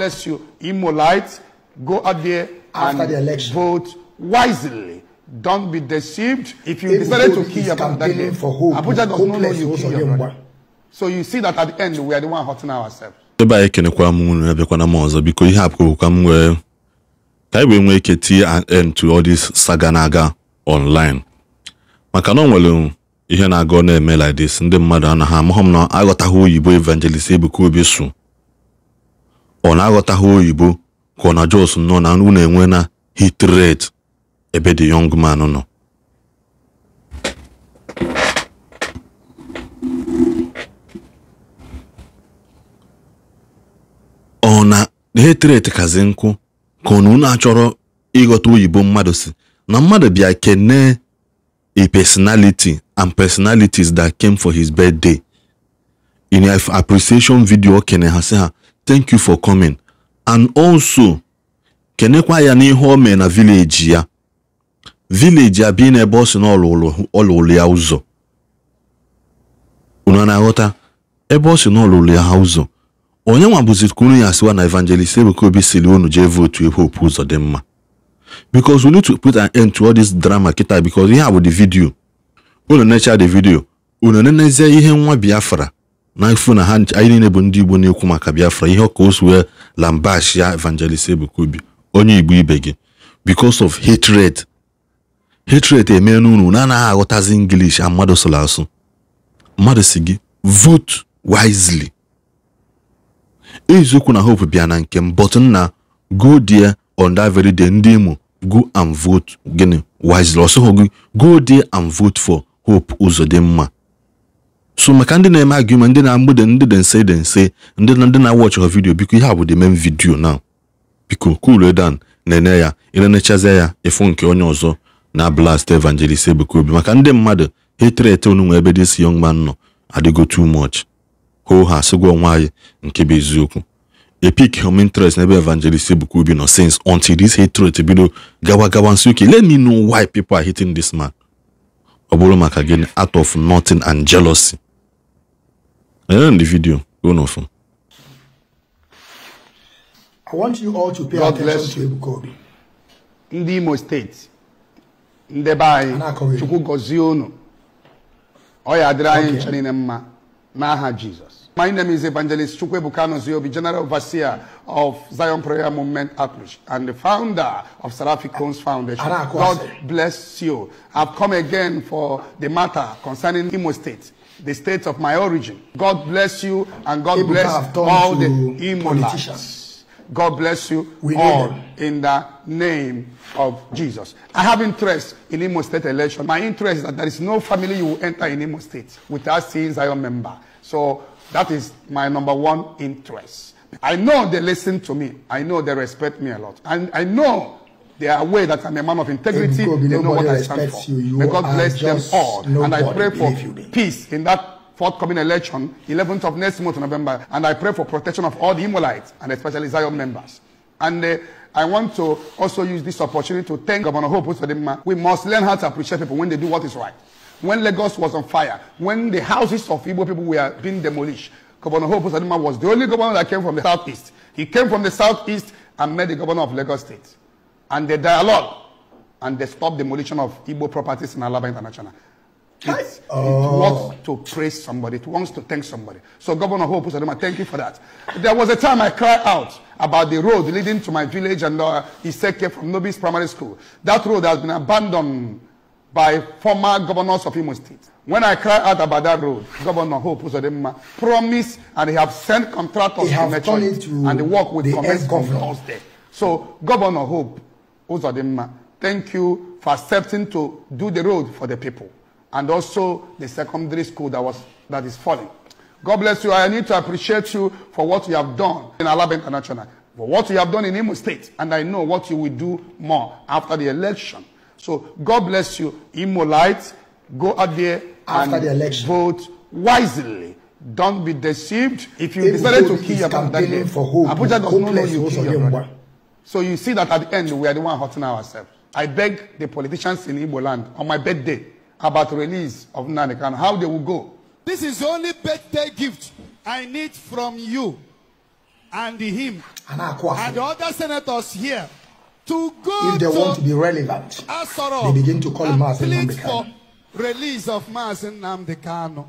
bless you, Imolites. Go out there After and the election. vote wisely. Don't be deceived. If you decided to kill your brother that day, Abuja does not know you kill your brother. So you see that at the end, we are the one hurting ourselves. ebe anyị kenekwa m unu abịakwana m ọzọ biko ihe apụkọkwa m wee ka anyị wee nwee ike tie end to all this saga na-aga online maka na ọ nwere ihe na-aga ọ na-eme like this ndị mmadụ anaghị amahụ m na aghọtaghị oyibo evangelist Ebuka Obi su ọ na-aghọtaghị oyibo ka ọ na Jos nọ na na enwe na hit ebe the yọng man nọ ọ na hit rate kazi nkụ ka ọ na unu achọrọ ịghọta oyibo mmadụ si na mmadụ bịa kene a personality and personalities that came for his birthday in appreciation video o kene ha si ha thank you for coming and also kenekwa ya n'ihe o mee na vileji ya vileji abịa n'ebe ọ si na ọlụlụ ya ụzọ unu na-aghọta ebe ọ si na ọlụlụ ya ha ụzọ onye nwa bụzikuru ya siwa na evangelist Ebuka Obi siri unu jee votu hope ụzọ dị mma because we need to put an end to all this drama Kita, because ihe a bụ the video unu necha the video unu nenezie ihe nwa Biafra n'ifu na ha anyị niile bụ ndị Igbo na-ekwu maka Biafra ihe ka o wee Evangelist Ebuka Obi onye Igbo ibe gị because of hatred hatred eme n'unu na anaghị aghọtazi English mmadụ sụrụ asụ mmadụ si gị vote wisely eziokwu na hope bịa na nke m but na go there on that very day ndị Imo go and vote gịnị wisely ọsọghọ gị go there and vote for hope mma. so maka ndị na-eme agụma ndị na-agbụde ndị dị nse dị nse ndị na ndị na-awọchị vidiyo biko ihe a bụ the main na biko cool eh, dan na-enye ya elenechazie ya ịfụ nke onye ọzọ na blast evangelist Ebuka Obi maka ndị mmadụ etere ete unu nwe ebe this young man nọ adịgo too much hoo ha sịgwa onwe nke bụ eziokwu epic home interest n'ebe evangelist Ebuka Obi nọ since until this hatred bido gawa gawa nsi oke let me know why people are hitting this man ọ bụrụ maka gịnị out of nothing and jealousy go no I want you all to pay God attention to Ebukobi. Ndị Imo steeti, ndebe anyị, Chukwu gọzie unu, ọ ya adịrị anyị nche My name is Evangelist Chukwebuka Noziobi, General Overseer of Zion Prayer Movement Outreach and the founder of Seraphic Homes Foundation. God bless you. I've come again for the matter concerning Imo State. the state of my origin. God bless you and God People bless all the politicians. God bless you we all in the name of Jesus. I have interest in Imo State election. My interest is that there is no family you will enter in Imo State without seeing Zion member. So that is my number one interest. I know they listen to me. I know they respect me a lot. And I know They are aware that I'm a man of integrity. they know what I stand for. You. You May God bless them all. And I pray for peace in that forthcoming election, 11th of next month, November. And I pray for protection of all the Imolites and especially Zion members. And uh, I want to also use this opportunity to thank Governor Hope Osodema. We must learn how to appreciate people when they do what is right. When Lagos was on fire, when the houses of Igbo people were being demolished, Governor Hope Osadima was the only governor that came from the southeast. He came from the southeast and met the governor of Lagos State and the dialogue and they stop demolition of Igbo properties in Alaba International. It, oh. it wants to praise somebody. It wants to thank somebody. So Governor Hope Usadoma, thank you for that. There was a time I cried out about the road leading to my village and uh, Iseke from Nobis Primary School. That road has been abandoned by former governors of Imo State. When I cried out about that road, Governor Hope Usadoma promised and he have sent contractors he to Metroid and the work with the commence on Thursday. So Governor Hope ụzọ dị mma thank you for accepting to do the road for the people and also the secondary school that was that is falling god bless you i need to appreciate you for what you have done in alaba international for what you have done in imo state and i know what you will do more after the election so god bless you imo light go out there after the election. vote wisely don't be deceived if you decided to kill your brother abuja does not know you kill your brother. So you see that at the end, we are the one hurting ourselves. I beg the politicians in Igbo land on my birthday about release of Nanikan, how they will go. This is the only birthday gift I need from you and him and, and the other senators here to go If they to want to be relevant, Asoro they begin to call him as for release of Mazin Namdekano.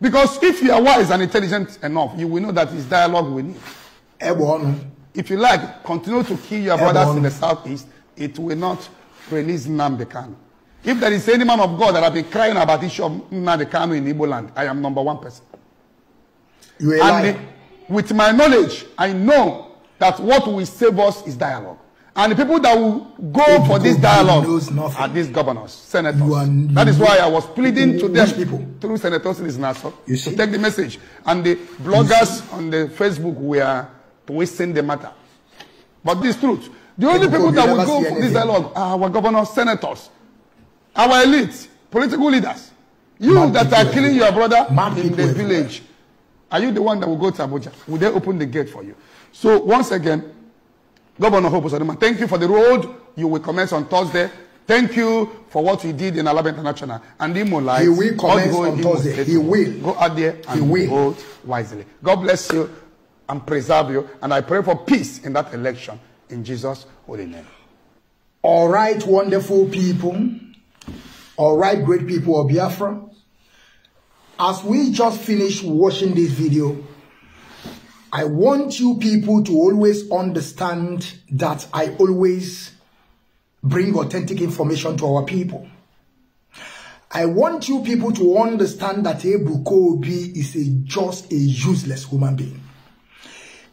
Because if you are wise and intelligent enough, you will know that it's dialogue we need. If you like, continue to kill your brothers in the southeast. It will not release Namdekan. If there is any man of God that have been crying about issue of Namdekan in Igbo land, I am number one person. You and lying. with my knowledge, I know that what will save us is dialogue. And the people that will go if for this dialogue are these governors, senators. Are, that is why I was pleading to them people? through senators in his nassau to take the message. And the bloggers on the Facebook were to wasting the matter. But this truth, the only people, people that will go for this dialogue are our governors, senators, our elites, political leaders. You Man that are killing your brother Man in the village, are you the one that will go to Abuja? Will they open the gate for you? So once again, Governor Hope Osaduma, thank you for the road you will commence on Thursday. Thank you for what you did in Alaba International. And Imo Light. He will commence on Thursday. He will. Go out there and he will. vote wisely. God bless you. and preserve you. And I pray for peace in that election. In Jesus' holy name. All right, wonderful people. All right, great people of Biafra. As we just finished watching this video, I want you people to always understand that I always bring authentic information to our people. I want you people to understand that Ebu Kobi is a, just a useless human being.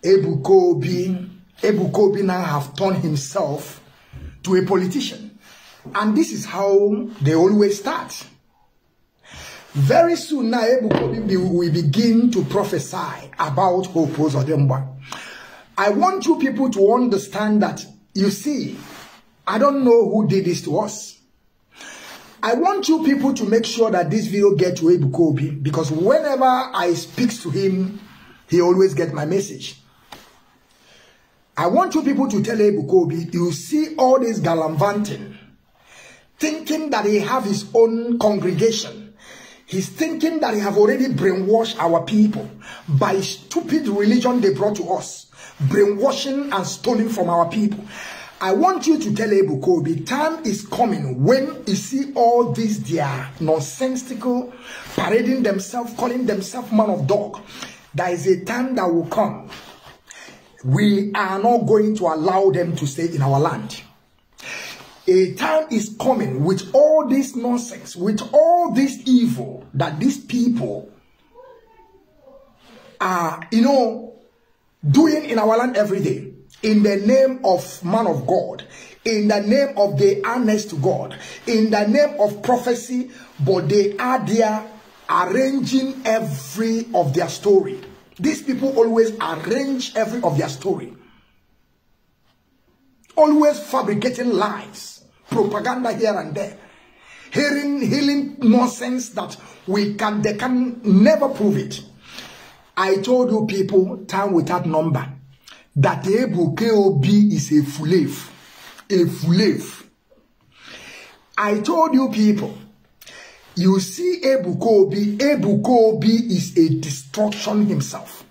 Abu Obi, Ebuka Obi now have turned himself to a politician. And this is how they always start. Very soon now, Ebuka Obi will begin to prophesy about Hopos Odemba. I want you people to understand that, you see, I don't know who did this to us. I want you people to make sure that this video gets to Ebuka Obi because whenever I speak to him, he always gets my message. I want you people to tell Ebukobi, you see all this gallivanting, thinking that he have his own congregation. He's thinking that he have already brainwashed our people by stupid religion they brought to us, brainwashing and stealing from our people. I want you to tell Ebukobi, time is coming when you see all these their nonsensical, parading themselves, calling themselves man of dog. There is a time that will come we are not going to allow them to stay in our land. A time is coming with all this nonsense, with all this evil that these people are, you know, doing in our land every day. In the name of man of God, in the name of the honest God, in the name of prophecy, but they are there arranging every of their story these people always arrange every of their story. Always fabricating lies, propaganda here and there. Hearing, healing nonsense that we can, they can never prove it. I told you people, time without number, that Ebu KOB is a fulave. A fulave. I told you people, you see Ebuka Obi Ebuka Obi is a destruction himself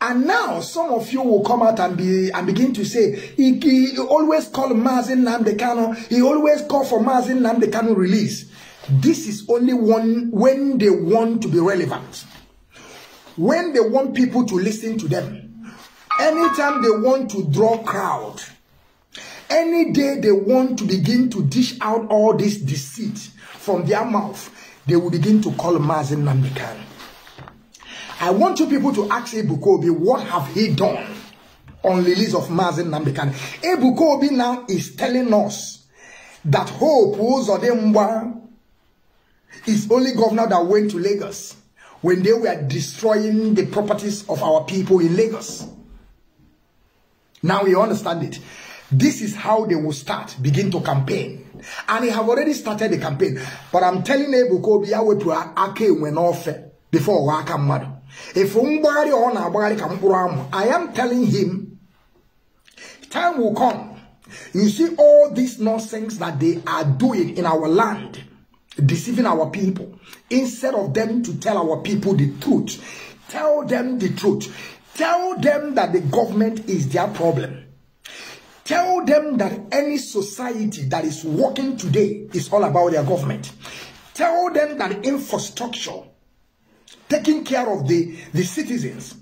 and now some of you will come out and be and begin to say he, he always call Mazin Namdekano he always call for Mazin Namdekano release this is only one when they want to be relevant when they want people to listen to them anytime they want to draw crowd Any day they want to begin to dish out all this deceit from their mouth, they will begin to call Mazin Namikan. I want you people to ask Kobi what have he done on release of Mazin Namikan? Kobi now is telling us that Hope Uzodemwa is only governor that went to Lagos when they were destroying the properties of our people in Lagos. Now you understand it. This is how they will start, begin to campaign. And they have already started the campaign. But I'm telling you, Bukobi, Awepua, Ake, when offer, eh, before come Madu. If Umbari on Abari Kampuram, I am telling him, time will come. You see all this nonsense that they are doing in our land, deceiving our people. Instead of them to tell our people the truth, tell them the truth. Tell them that the government is their problem. Tell them that any society that is working today is all about their government. Tell them that infrastructure, taking care of the, the citizens,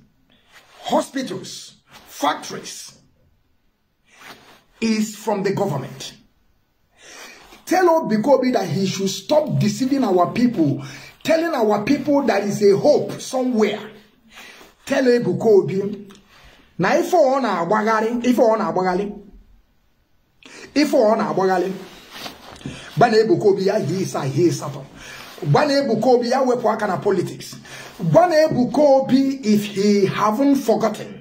hospitals, factories, is from the government. Tell Old that he should stop deceiving our people, telling our people that is a hope somewhere. Tell Old na ife ọ na-agbagharị, ife ọ if ọ na-agbaghalị gba na-ebuka obi ya he is, hie ịsatọ gba na-ebuka obi ya wepụ politics gba na if he haven't forgotten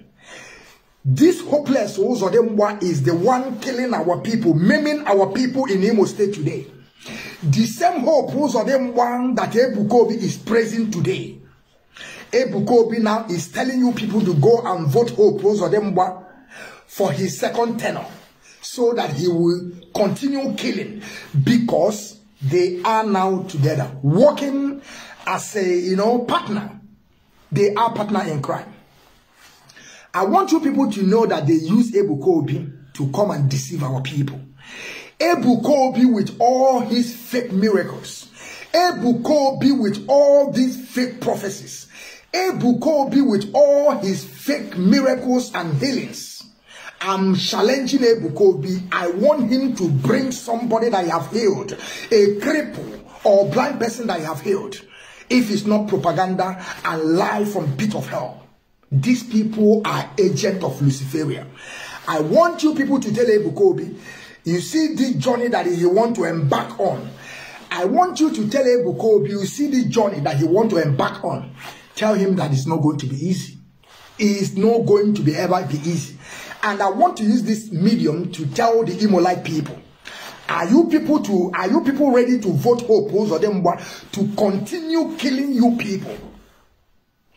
This hopeless Uzodemwa is the one killing our people, maiming our people in Imo State today. The same hope Uzodemwa that Ebukobi is praising today. Ebukobi now is telling you people to go and vote hope Uzodemwa for his second tenor so that he will continue killing because they are now together, working as a, you know, partner. They are partner in crime. I want you people to know that they use Abu Kobi to come and deceive our people. Abu Kobi with all his fake miracles. Abu Kobi with all these fake prophecies. Abu Kobi with all his fake miracles and healings. I'm challenging Abu Obi. I want him to bring somebody that I have healed, a cripple or blind person that I have healed. If it's not propaganda and lie from pit of hell. These people are agent of Luciferia. I want you people to tell Abu Obi, you see this journey that he want to embark on. I want you to tell Abu Obi, you see this journey that he want to embark on. Tell him that it's not going to be easy. It's not going to be ever be easy. And I want to use this medium to tell the Imolite people. Are you people to are you people ready to vote oppose or them to continue killing you people?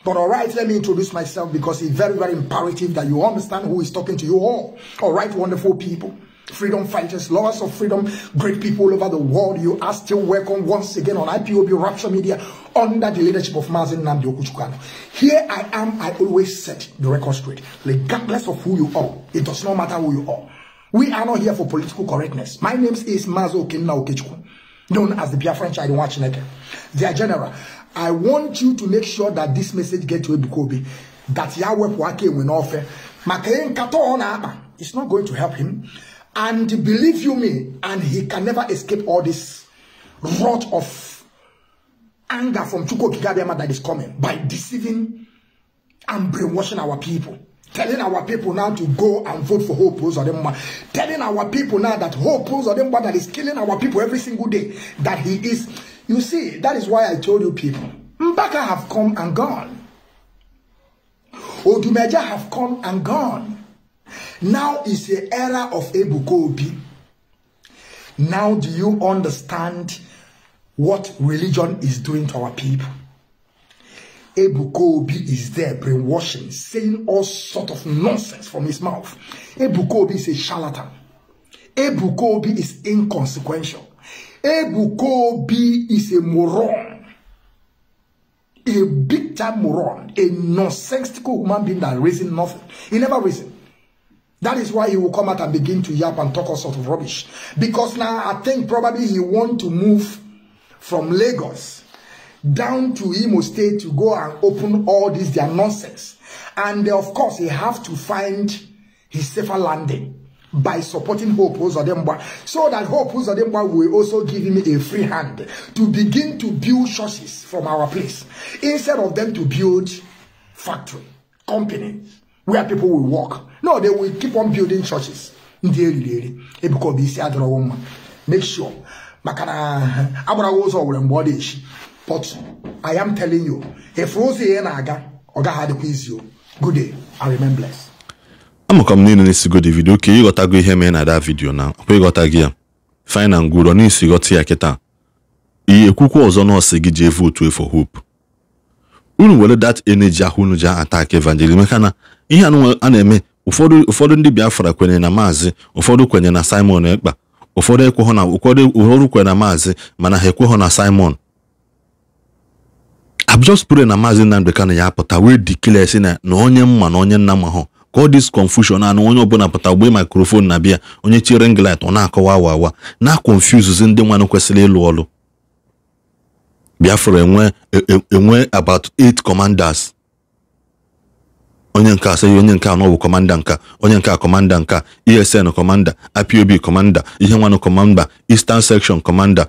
But all right, let me introduce myself because it's very, very imperative that you understand who is talking to you all. All right, wonderful people freedom fighters, lovers of freedom, great people all over the world. You are still welcome once again on IPOB Rapture Media under the leadership of Mazin Namdi Okuchukano. Here I am, I always set the record straight. Regardless of who you are, it does not matter who you are. We are not here for political correctness. My name is Mazo Okinna Okechukwu, known as the French Child Watchneke, their general. I want you to make sure that this message gets to Ebukobi, that Yahweh Wake will not offer. Makayen Kato on It's not going to help him. And believe you me, and he can never escape all this rot of anger from Chuko Kigabiyama that is coming by deceiving and brainwashing our people. Telling our people now to go and vote for Hope Uzodimba. Telling our people now that Hope Uzodimba that is killing our people every single day, that he is. You see, that is why I told you people, Mbaka have come and gone. Odumeja have come and gone. Now is the era of Ebukobi. Now do you understand what religion is doing to our people? Ebukobi is there brainwashing, saying all sort of nonsense from his mouth. Ebukobi is a charlatan. Ebukobi is inconsequential. Ebukobi is a moron. A big time moron. A nonsensical human being that raising nothing. He never reason. That is why he will come out and begin to yap and talk all sorts of rubbish. Because now I think probably he want to move from Lagos down to Imo State to go and open all this their nonsense. And of course, he have to find his safer landing by supporting Hope Uzodemba. So that Hope Uzodemba will also give him a free hand to begin to build churches from our place. Instead of them to build factory, companies. where pipo will walk. No, they will keep on building churches. ndi eriri eri ebikọ e isi adọrọwo mma make sure maka na agbarawa ụzọ were mgbe ọ dị echi but I am telling you if efuru ụzọ ihe na-aga ọ gaghị adịkwa izi o good day and remember. blessed. amụkọ m niile na-esigo Davido ka ịghọtago ihe mere na ada vidio na ọkwa ịghọta ya fine na ngwụrọ n'isi ghọta ya kịta ihe ekwukwa ọzọ nọọsụ gị ji evu otu hope unu were dat eneji ahụ unu ji atak evangelism maka na ihe a na-eme ụfọdụ ụfọdụ ndị biafra kwenyere na maazị ụfọdụ kwenye na simon ekpa ụfọdụ ekweghị na ụfọdụ ụfọdụ kwenye na maazị mana ha ekweghọ na simon abjọs na maazị nnamdị kanu ya apụta wee dikile si na na onye mma na onye nna ma hụ ka ọ dis confusion anụ onye ọbụla pụta gbee mikrofon na bịa onye chiri nglit ọ na-akọwa awa awa na-akonfuzuzi ndị nwanụ kwesịrị ịlụ ọlụ Biafra enwe e, e, enwe about eight commanders onye nke asị onye nke anọ bụ kọmanda nka onye nke a kọmanda nka esn kọmanda ipob kọmanda ihe nwanụ kọmanda eastern section kọmanda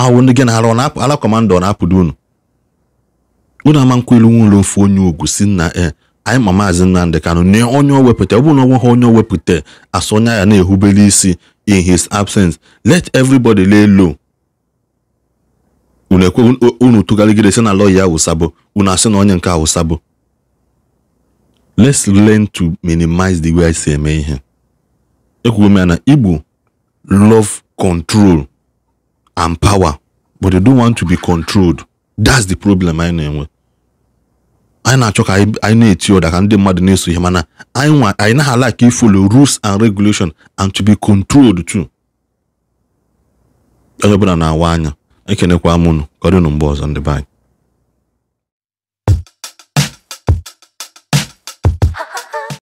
ahụ ndị gị na-arụ ala kọmanda ọ na-apụdo unu unu ama nkwelu nwụrụ ofu onye ugwu si na e anyị ma maazị Nnamdị Kanụ nye onye o wepụta ọ bụrụ na onwe ha onye o wepụta asọ onye ya na-ehubere isi in his absence let everybody lay low unu tụgharịgide sị na lọya awụsabụ unu asị na onye nke awụsabụ let's learn to minimize the way anyị si eme ihe ekwugo m ya na igbo love control and power but they don't want to be controlled that's the problem anyị na-enwe anyị na-achọ ka anyị na-eti ụda ka ndị mmadụ na-eso ihe mana anyị nwa anyị ka ifolo rules and regulation and to be controlled too onye ọbụla na-awa anya ekenekwa m unu ka ọ dịnụ mgbe ọzọ ndị be